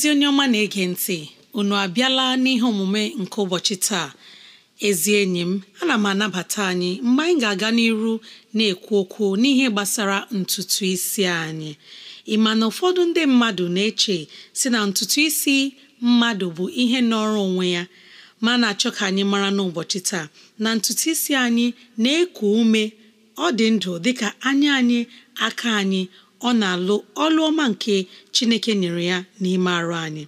ezi onye ọma na-ege ntị unu abịala n'ihe omume nke ụbọchị taa ezi enyi m ana m anabata anyị mgbe anyị ga-aga n'iru na-ekwu okwu n'ihe gbasara ntutu isi anyị ịma na ụfọdụ ndị mmadụ na-eche si na ntutu isi mmadụ bụ ihe nọrọ onwe ya ma na-achọ ka anyị mara n'ụbọchị taa na ntutu isi anyị na-eku ume ọ dị ndụ dịka anya anyị aka anyị ọ na-alụ ọlụ ọma nke Chineke nyere ya n'ime arụ anyị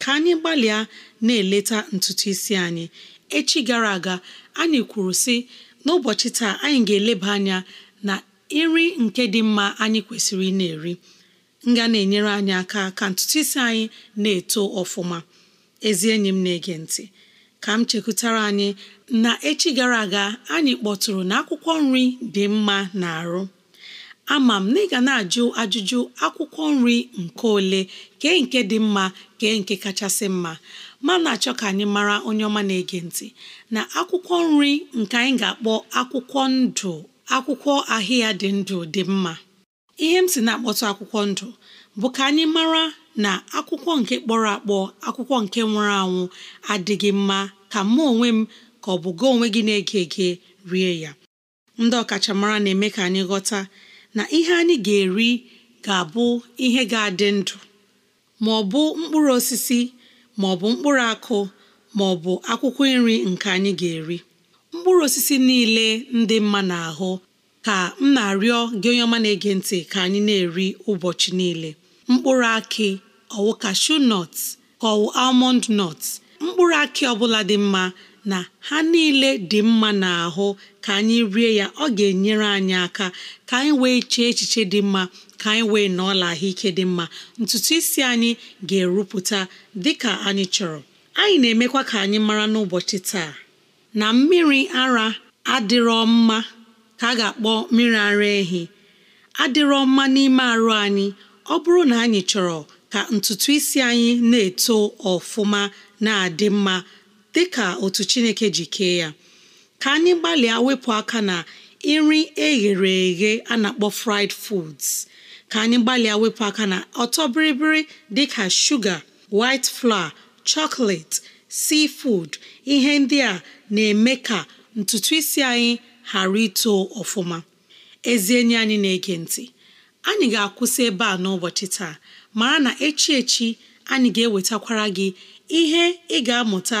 ka anyị gbalịa na-eleta ntutu isi anyị echi gara aga anyị kwuru sị n'ụbọchị taa anyị ga-eleba anya na nri nke dị mma anyị kwesịrị ị na-eri nga na-enyere anyị aka ka ntutu isi anyị na-eto ọfụma ezi enyi m na-ege ntị ka m chekwutara anyị na echi gara aga anyị kpọtụrụ na akwụkwọ nri dị mma na arụ ama m na ị ga na-ajụ ajụjụ akwụkwọ nri nke ole kee nke dị mma kee nke kachasị mma ma na-achọ ka anyị mara onye ọma na-ege ntị na akwụkwọ nri nke anyị ga-akpọ akwụkwọ ndụ akwụkwọ ahịa dị ndụ dị mma ihe m si na-akpọtụ akwụkwọ ndụ bụ ka anyị mara na akwụkwọ nke kpọrọ akpọ akwụkwọ nke nwụrụ anwụ adịghị mma ka mụ onwe m ka ọ bụ gị onwe gị na-ege ege rie ya ndị ọkachamara na-eme ka anyị ghọta na ihe anyị ga-eri ga-abụ ihe ga-adị ndụ ma ọ bụ mkpụrụ osisi ma ọ bụ mkpụrụ akụ ma ọ bụ akwụkwọ nri nke anyị ga-eri mkpụrụ osisi niile ndị mma n'ahụ ka m na-arịọ gị onye ọma na-ege ntị ka anyị na-eri ụbọchị niile mkpụrụ akị ọwụ cashew nọt ka almond nut mkpụrụ akị ọbụla dị mma na ha niile dị mma n'ahụ ka anyị rie ya ọ ga-enyere anyị aka ka anyị wee chee echiche dị mma ka anyị wee na ahụike dị mma ntutu isi anyị ga-erupụta dị ka anyị chọrọ anyị na-emekwa ka anyị mara n'ụbọchị taa na mmiri ara adịrọ mma ka a ga-akpọ mmiri ara ehi adịrọ mma n'ime arụ anyị ọ bụrụ na anyị chọrọ ka ntutu isi anyị na-eto ọfụma na-adị mma dị ka otu chineke ji kee ya ka anyị gbalịa wepụ aka na nri eghere eghe a na-akpọ fried foods ka anyị gbalịa wepụ aka na ọtọ biribiri dị ka shuga white flour chocolate seafood ihe ndị a na-eme ka ntutu isi anyị ghara ito ọfụma ezi enyi anyị na-ege ntị anyị ga-akwụsị ebe a n'ụbọchị taa mara na echi echi anyị ga-ewetakwara gị ihe ị ga-amụta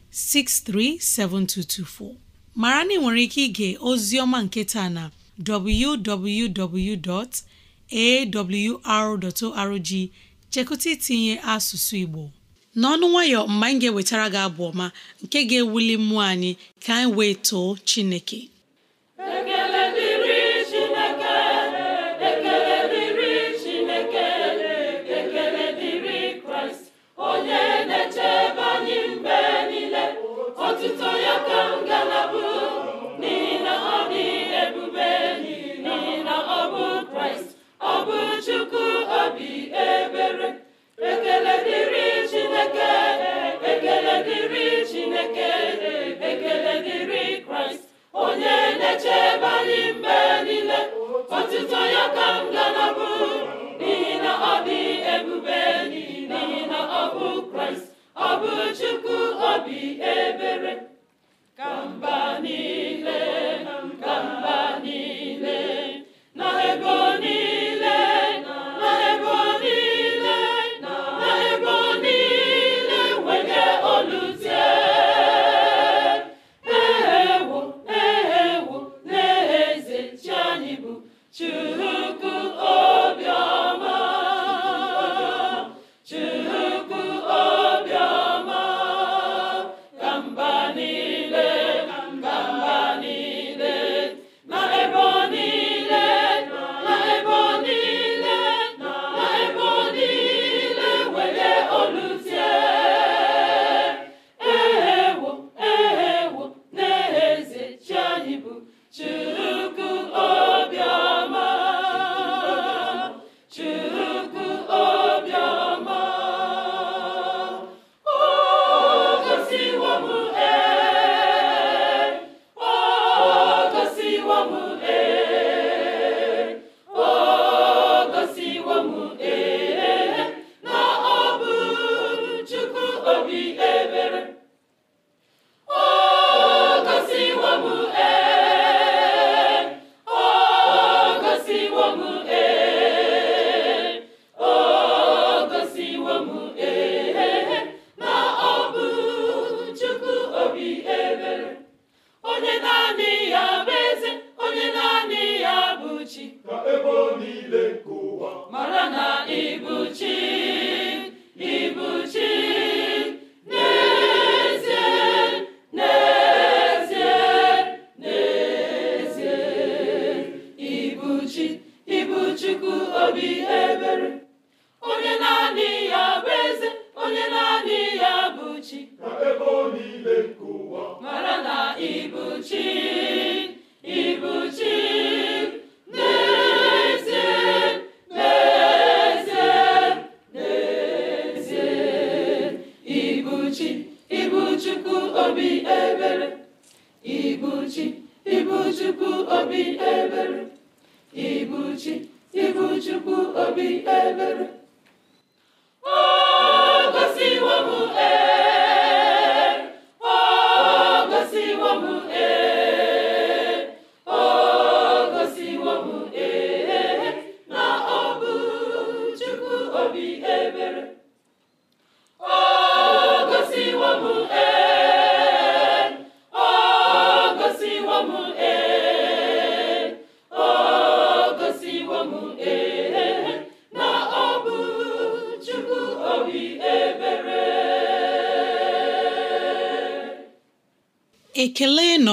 637224 mara na ị nwere ike ige ozi ọma nketa na www.awr.org chekụta itinye asụsụ Igbo n'ọnụ nwayọ mgbe anyị ga-ewetara gị abụ ọma nke ga-ewuli mmụọ anyị ka anyị wee too Chineke obi ebere ekele dịrị Chineke ekele dịrị Chineke ekele dịrị Kraịst onye na-echebe anyị mgbe niile otụtụ ya ka m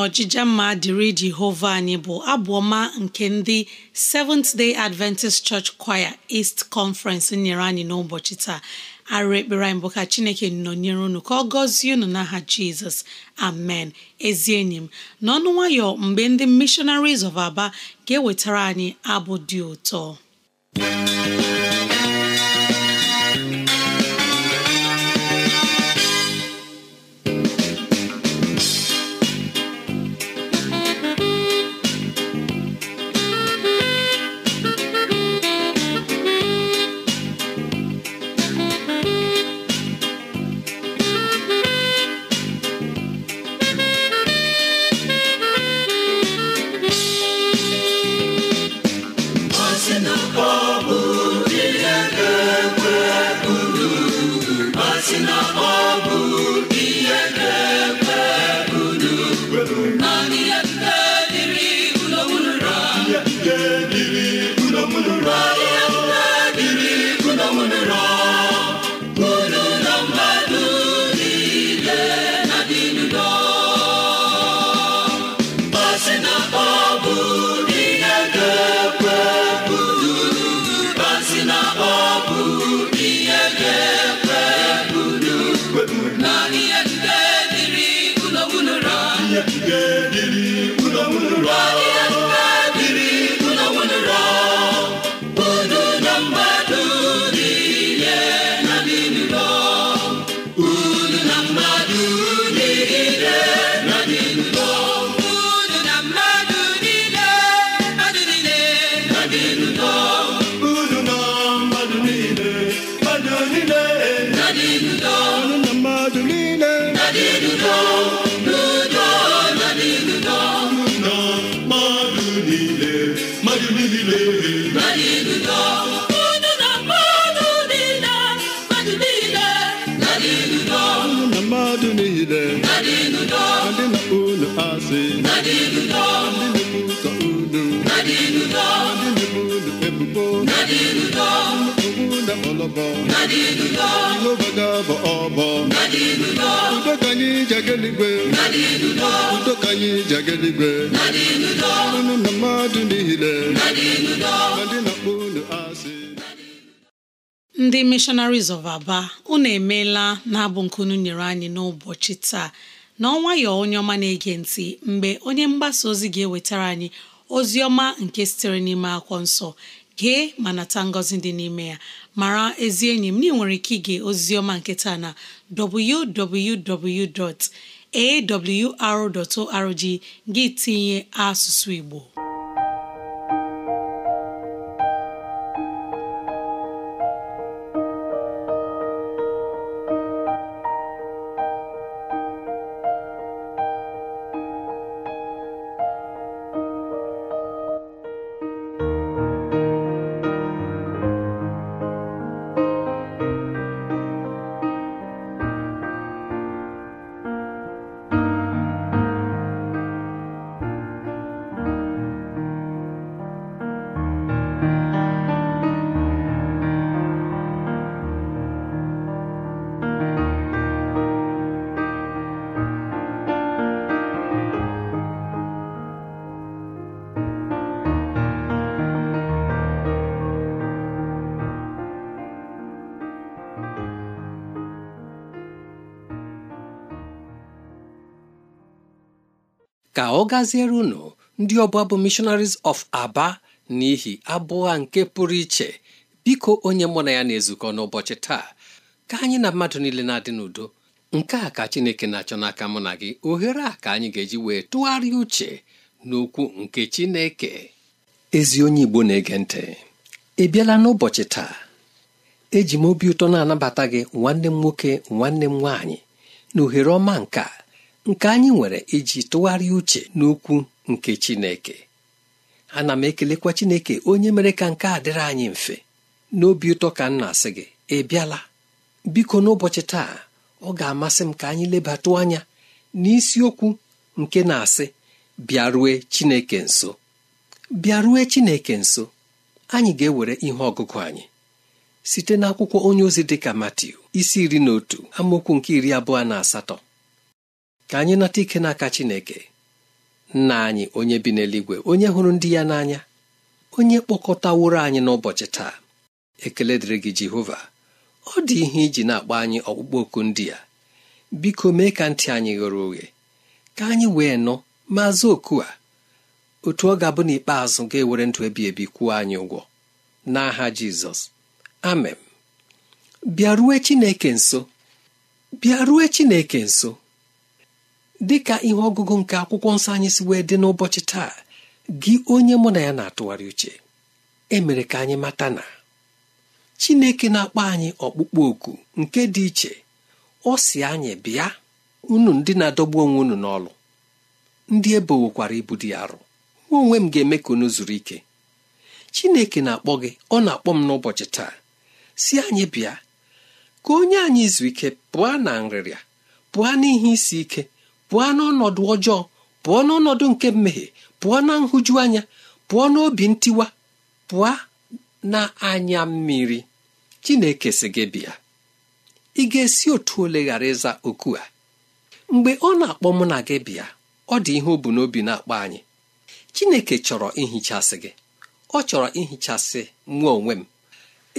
ọjịja mma dịrị Jehova anyị bụ abụ ọma nke ndị Seventh Day Adventist Church Choir East Conference nyere anyị n'ụbọchị taa arụ ekpere anyị bụ ka Chineke nọnyere unu ka ọ gọzie unu n'aha Jizọs amen ezi enyi m n'ọnụ nwayọ mgbe ndị Missionaries of Aba ga-ewetara anyị abụ dị ụtọ ọbọ Udo ka anyị Udo ka anyị na mmadụ niile ndị na-akpọ asị ndị of aba unu emeela na-abụ nke unu nyere anyị n'ụbọchị taa na onye ọma na-ege ntị mgbe onye mgbasa ozi ga-ewetara anyị ozi ọma nke sitere n'ime akwọ nsọ gee ma nata ngọzi dị n'ime ya mara ezi enyi m na ị nwere ike ige oziọma nke taa na www.awr.org gị tinye asụsụ Igbo ọ gaziere unu ndị ọbụla bụ missionaries of aba n'ihi abụọ nke pụrụ iche biko onye mụ na ya na-ezukọ n'ụbọchị taa ka anyị na mmadụ niile na-adị n'udo nke a ka chineke na-achọ n'aka mụ na gị ohere a ka anyị ga-eji wee tụgharịa uche n'okwu nke chineke ezi onye igbo na-ege ntị ị bịala n'ụbọchị taa eji m obi ụtọ na-anabata gị nwanne m nwoke nwanne m nwaanyị na ohere ọma a. nke anyị nwere iji tụgharịa uche n'okwu nke Chineke ana m ekelekwa Chineke onye mere ka nke a dịrị anyị mfe n'obi ụtọ ka m na-asị gị ị bịala biko n'ụbọchị taa ọ ga-amasị m ka anyị lebatụ anya n'isiokwu nke na-asị bịarue Chineke nso bịarue Chineke nso anyị ga-ewere ihe ọgụgụ anyị site n'akwụkwọ onye ozi ka Matiu isi iri na otu amaokwu nke iri abụọ na asatọ ka anyị nata ike n'aka Chineke nna anyị onye bi n'eluigwe onye hụrụ ndị ya n'anya onye kpọkọtaworo anyị n'ụbọchị taa ekele dịrị gị Jehova ọ dị ihe iji na-akpọ anyị ọkpụkpọ oku ndị a biko mee ka ntị anyị ghere oghe ka anyị wee nụ ma zụ oku a otu ọ ga-abụ n'ikpeazụ ga-ewere ndụ ebi ebi kwụọ anyị ụgwọ n'aha Jizọs amen bịarue Chineke nso bịarue Chineke nso dị ka ihe ọgụgụ nke akwụkwọ nsọ anyị si wee dị n'ụbọchị taa gị onye mụ na ya na-atụgharị uche emere ka anyị mata na Chineke na-akpọ anyị ọkpụkpọ oku nke dị iche ọ si anyị bịa unu ndị na-adọgbu onwe unu n'ọlụ ndị ebowokwara ibu dị arụ nwa onwe m ga-eme ka unu zuru ike Chineke na-akpọ gị ọ na-akpọ m n'ụbọchị taa si anyị bịa ka onye anyị izu ike pụọ na nrịrịa pụọ n'ihe isi ike pụọ n'ọnọdụ ọjọọ pụọ n'ọnọdụ nke mmehie pụọ na nhụjuanya anya pụọ n'obi ntiwa pụọ na anya mmiri chineke si gị bịa ị ga-esi otu ole ghara ịza oku a mgbe ọ na-akpọ mụ na gị bịa ọ dị ihe o bu n'obi na-akpọ anyị chineke chọrọ ihichasị gị ọ chọrọ ihichasị nwa onwe m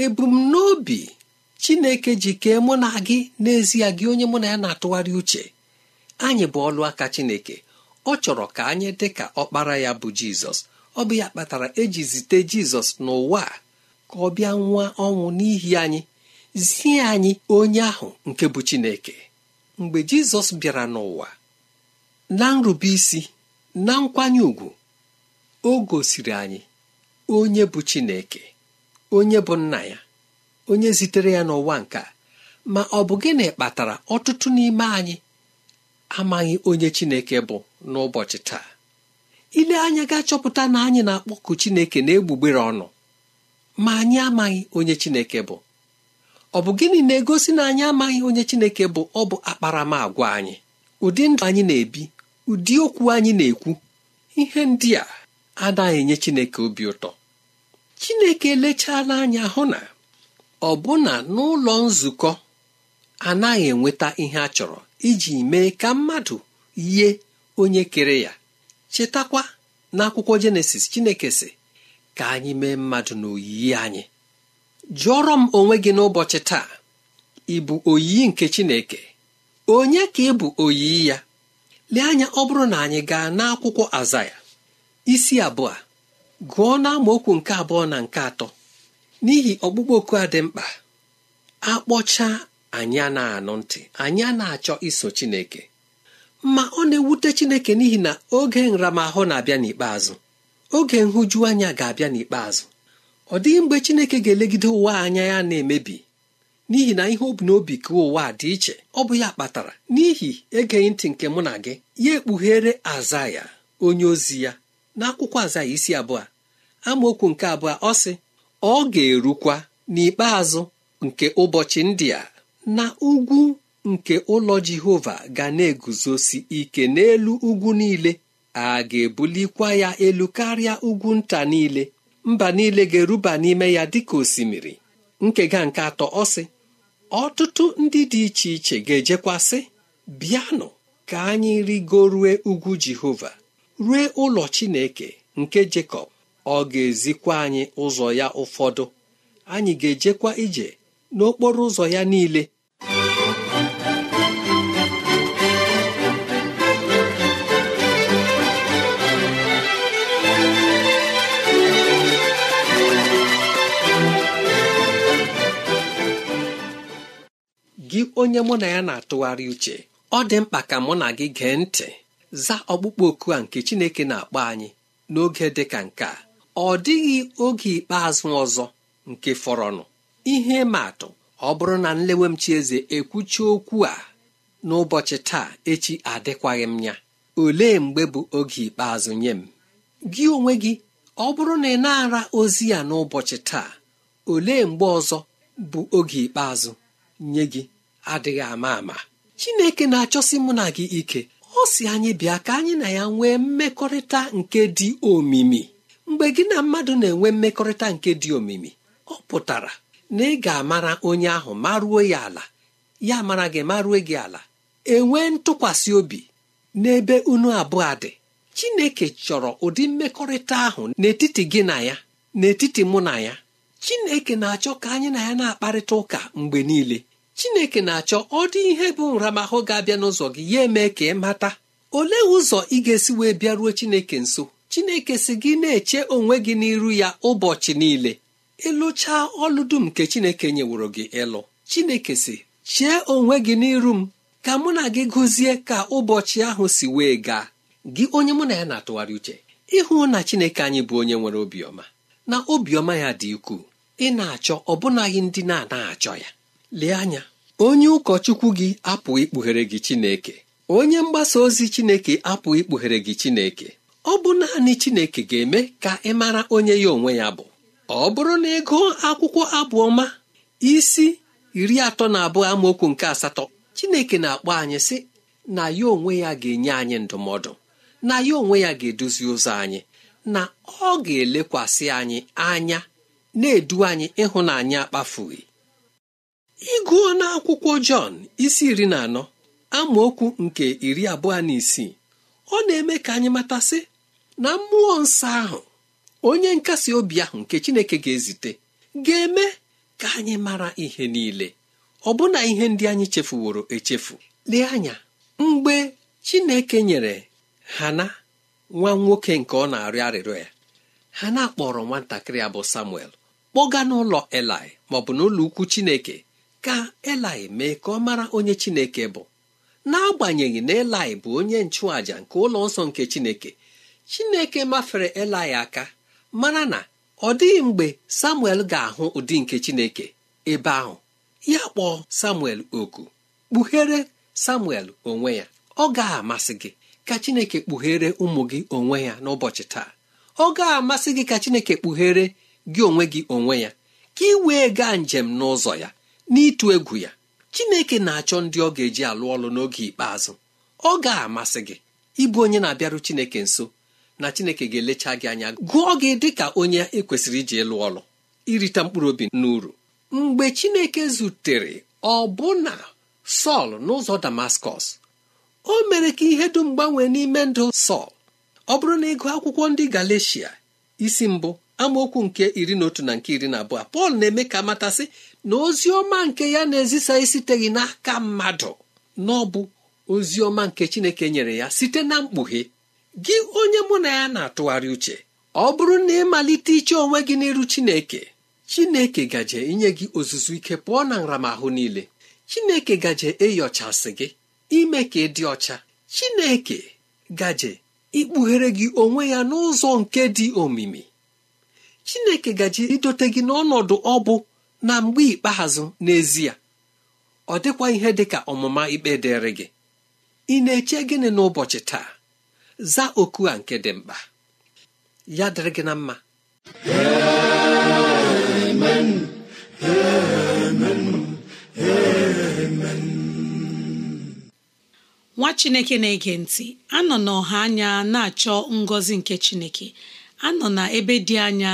ebumnobi chineke ji kee mụ na gị n'ezie gị onye mụ na ya na-atụgharị uche anyị bụ ọlụ aka Chineke ọ chọrọ ka anyị dị ka ọkpara ya bụ Jizọs ọ bụ ya kpatara eji zite Jizọs n'ụwa ka ọ bịa nwa ọnwụ n'ihi anyị zie anyị onye ahụ nke bụ Chineke mgbe Jizọs bịara n'ụwa na nrube isi na nkwanye ùgwù o gosiri anyị onye bụ Chineke onye bụ nna ya onye zitere ya n'ụwa nke ma ọ bụ gịnị kpatara ọtụtụ n'ime anyị amaghị onye chineke bụ n'ụbọchị taa ile anya ga-achọpụta na anyị na-akpọku chineke na-egbugbere ọnụ ma anyị amaghị onye chineke bụ ọ bụ gịnị na-egosi na anyị amaghị onye chineke bụ ọ bụ akparamagwa anyị ụdị ndụ anyị na-ebi ụdị okwu anyị na-ekwu ihe ndị a anaghị enye chineke obi ụtọ chineke elechala anya hụ na ọbụna n'ụlọ nzukọ anaghị enweta ihe a chọrọ iji mee ka mmadụ yie onye kere ya chetakwa n'akwụkwọ jenesis chineke si ka anyị mee mmadụ na oyiyi anyị jụọrọ m onwe gị n'ụbọchị taa ị bụ oyiyi nke chineke onye ka ị bụ oyiyi ya lee anya ọ bụrụ na anyị gaa n'akwụkwọ azaya isi abụọ gụọ n'amaokwu nke abụọ na nke atọ n'ihi ọkpụkpọ oku a dị mkpa akpọcha anyị a na-anụ ntị anyị a na-achọ iso Chineke ma ọ na-ewute Chineke n'ihi na oge nramahụ na-abịa n'ikpeazụ oge nhụju anya ga-abịa n'ikpeazụ ọ dịghị mgbe Chineke ga-elegide ụwa anya ya na-emebi n'ihi na ihe obi n'obi ka ụwa dị iche ọ bụ ya kpatara n'ihi egeghị ntị nke mụ na gị ya ekpughere aza ya onye ozi ya na aza ya isi abụọ amaokwu nke abụọ ọ sị ọ ga-erukwa n'ikpeazụ nke ụbọchị ndị a na ugwu nke ụlọ jehova ga na-eguzosi ike n'elu ugwu niile a ga-ebulikwa ya elu karịa ugwu nta niile mba niile ga-eruba n'ime ya dịka osimiri nkega nke atọ ọsị ọtụtụ ndị dị iche iche ga-ejekwasị bịanụ ka anyị rigorue ugwu jehova rue ụlọ chineke nke jekọb ọ ga-ezikwa anyị ụzọ ya ụfọdụ anyị ga-ejekwa ije n'okporo ụzọ ya niile gị onye mụ na ya na-atụgharị uche ọ dị mkpa ka mụ na gị gee ntị za ọkpụkpọ oku a nke Chineke na-akpọ anyị n'oge dị ka nke a ọ dịghị oge ikpeazụ ọzọ nke fọrọnụ ihe ma atụ ọ bụrụ na nlewe m chi eze ekwuchi okwu a n'ụbọchị taa echi adịkwaghị m ya olee mgbe bụ oge ikpeazụ nye m gị onwe gị ọ bụrụ na ị na-ara ozi ya n'ụbọchị taa olee mgbe ọzọ bụ oge ikpeazụ nye gị adịghị ama ama chineke na-achọsi mụ na gị ike ọ si anyị bịa ka anyị na ya nwee mmekọrịta nke dị omimi mgbe gị na mmadụ na-enwe mmekọrịta nke dị omimi ọ pụtara na ị ga-amara onye ahụ maruo ya ala ya mara gị maruo gị ala enwee ntụkwasị obi n'ebe unu abụọ dị chineke chọrọ ụdị mmekọrịta ahụ n'etiti gị na ya n'etiti mụ na ya chineke na-achọ ka anyị na ya na-akparịta ụka mgbe niile chineke na-achọ ọ dị ihe bụ nramahụ ga-abịa n'ụzọ gị ya eme ka ị mata olee ụzọ ị ga-esi wee bịaruo chineke nso chineke si gị na-eche onwe gị n'iru ya ụbọchị niile ịlụchaa e ọlụ dum nke chineke nyeworo gị ịlụ chineke si chee onwe gị n'iru m ka mụ na gị gụzie ka ụbọchị ahụ si wee gaa gị onye mụ na ya na-atụgharị uche ịhụ na chineke anyị bụ onye nwere obiọma na obiọma ya dị ukwuu ị na-achọ ọbụnaghị ndị na-anaghị achọ ya lee anya onye ụkọchukwu gị apụghị ikpughere gị Chineke onye mgbasa ozi Chineke apụghị ikpughere gị Chineke ọ bụ naanị Chineke ga-eme ka ị mara onye ya onwe ya bụ ọ bụrụ na ego akwụkwọ abụ ọma isi iri atọ na abụọ amaokwu nke asatọ Chineke na-akpọ anyị sị na ya onwe ya ga-enye anyị ndụmọdụ na ya onwe ya ga-eduzi ụzọ anyị na ọ ga-elekwasị anyị anya na-edu anyị ịhụnanya akpafughị ịgụọ na akwụkwọ Jọn isi iri na anọ amaokwu nke iri abụọ na isii ọ na-eme ka anyị matasị na mmụọ nsọ ahụ onye nkasi obi ahụ nke Chineke ga-ezite ga-eme ka anyị mara ihe niile ọbụna ihe ndị anyị chefuworo echefu lee anya mgbe Chineke nyere Hana nwa nwoke nke ọ na-arịọ arịrịọ ya Hana kpọrọ nwatakịrị ya bụ Samuel kpọga n'ụlọ Elai maọbụ n'ụlọ ukwu Chineke ka elai mee ka ọ mara onye chineke bụ n'agbanyeghị na elai bụ onye nchụàja nke ụlọ nsọ nke chineke chineke mafere elai aka mara na ọ dịghị mgbe samuel ga-ahụ ụdị nke chineke ebe ahụ ya kpọọ samuel oku kpughere samuel onwe ya ọ ga-amasị gị ka chineke kpughere ụmụ gị onwe ya n'ụbọchị taa ọ ga-amasị gị ka chineke kpughere gị onwe gị onwe ya ka ị wee gaa njem n'ụzọ ya n'ịtụ egwu ya chineke na-achọ ndị ọ ga-eji alụ ọlụ n'oge ikpeazụ ọ ga-amasị gị ịbụ onye na-abịarụ chineke nso na chineke ga-elecha gị anya gụọ gị dị ka onye ekwesịrị iji ịlụ ọlụ irita mkpụrụ obi n'uru mgbe chineke zutere ọbụna sọl n'ụzọ damaskọs o mere ka ihe dum gbanwee n'ime ndụ sọl ọ bụrụ na ịgụ akwụkwọ ndị galecia isi mbụ amaokwu nke iri na otu na nke iri na abụọ pọl na-eme ka matasị na ozi ọma nke ya na-ezisa gị n'aka mmadụ na ọ bụ ozi ọma nke chineke nyere ya site na mkpughe gị onye mụ na ya na-atụgharị uche ọ bụrụ na ịmalite iche onwe gị n'iru chineke chineke gaje inye gị ozuzu ike pụọ na nramahụ niile chineke gaje ịyọchasị gị ime ka ị dị ọcha chineke gaje ikpughere gị onwe ya n'ụzọ nke dị omimi chineke gaje idote gị n'ọnọdụ ọ bụ na mgbe ikpeazụ n'ezie ọ dịkwa ihe dị ka ọmụma ikpe dịrị gị ị na-eche gịnị n'ụbọchị taa zaa oku a nke dị mkpa ya dịrị gị na mma nwa chineke na-ege ntị anọ n'ọha anya na-achọ ngọzi nke chineke anọ na ebe dị anya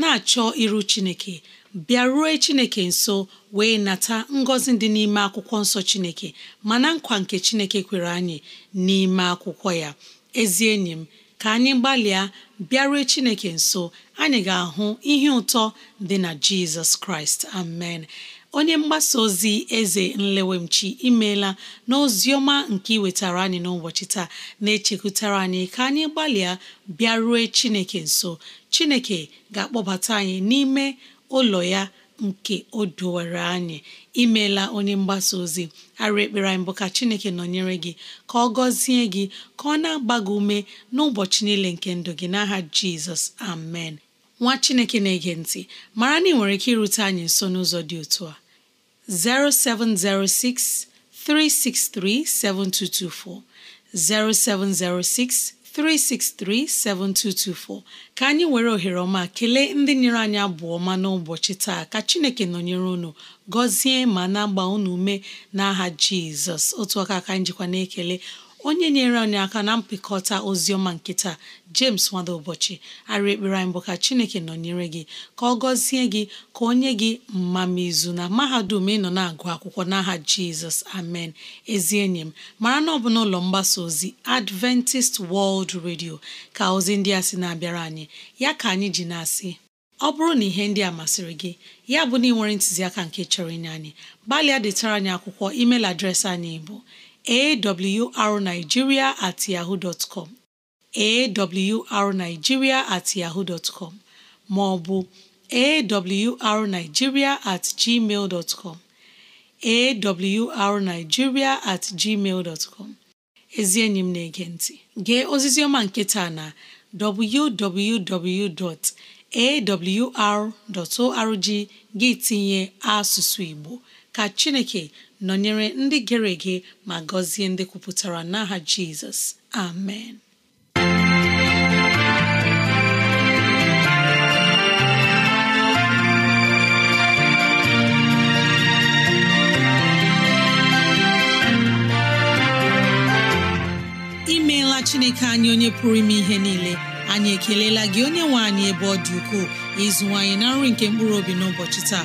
na-achọ iru chineke bịaruo chineke nso wee nata ngọzi dị n'ime akwụkwọ nsọ chineke mana nkwa nke chineke kwere anyị n'ime akwụkwọ ya ezi enyi m ka anyị gbalịa bịaruo chineke nso anyị ga-ahụ ihe ụtọ dị na jizọs kraịst amen onye mgbasa ozi eze nlewemchi imeela na ọma nke iwetara anyị n'ụbọchị taa na-echekwutara anyị ka anyị gbalịa bịaruo chineke nso chineke ga-akpọbata anyị n'ime ụlọ ya nke o dowere anyị imeela onye mgbasa ozi arị ekpere anyị bụ ka chineke nọnyere gị ka ọ gọzie gị ka ọ na-agba gị ume n'ụbọchị niile nke ndụ gị n'aha jizọs amen nwa chineke na-ege ntị mara na ị nwere ike irute anyị nso n'ụzọ dị otu a 0706 363 7224 0706 363 7224 ka anyị were ohere ọma kelee ndị nyere anyị abụ ọma n'ụbọchị taa ka Chineke nọnyere unu gọzie ma na-agba unu ume n'aha Jizọs otu aka ka anyị na-ekele onye nyere anyị aka na mpịkọta ozi ọma nkịta James nwada ụbọchị arị ekpere anyị bụ ka Chineke nọnyere gị ka ọ gọzie gị ka onye gị gị mmamizu na mahadum ị nọ na-agụ akwụkwọ n'aha Jizọs amen ezi enyi m mara na ọ bụ n'ụlọ mgbasa ozi Adventist World Radio ka ozi ndị a si na-abịara anyị ya ka anyị ji na-asị ọ bụrụ na ihe ndị a masịrị gị ya bụ na ị nwere ntụziaka nke chọrọ inye anyị gbalịa detara anyị akwụkwọ email adreesị anyị bụ awrnigeria at yahoo dot com awrnigeria at yahoo dot com ma ọ bụ at gmail dot com at gmail dot ezi enyi m na-ege ntị gee ozizi ọma nke taa na www.awr.org gị tinye asụsụ Igbo ka Chineke nọnyere ndị gere ege ma gọzie ndị kwupụtara n'aha jizọs amen imeela chineke anyị onye pụrụ ime ihe niile anyị ekelela gị onye nwe anyị ebe ọ dị ukwuu ịzụwanyị na nri nke mkpụrụ obi n'ụbọchị taa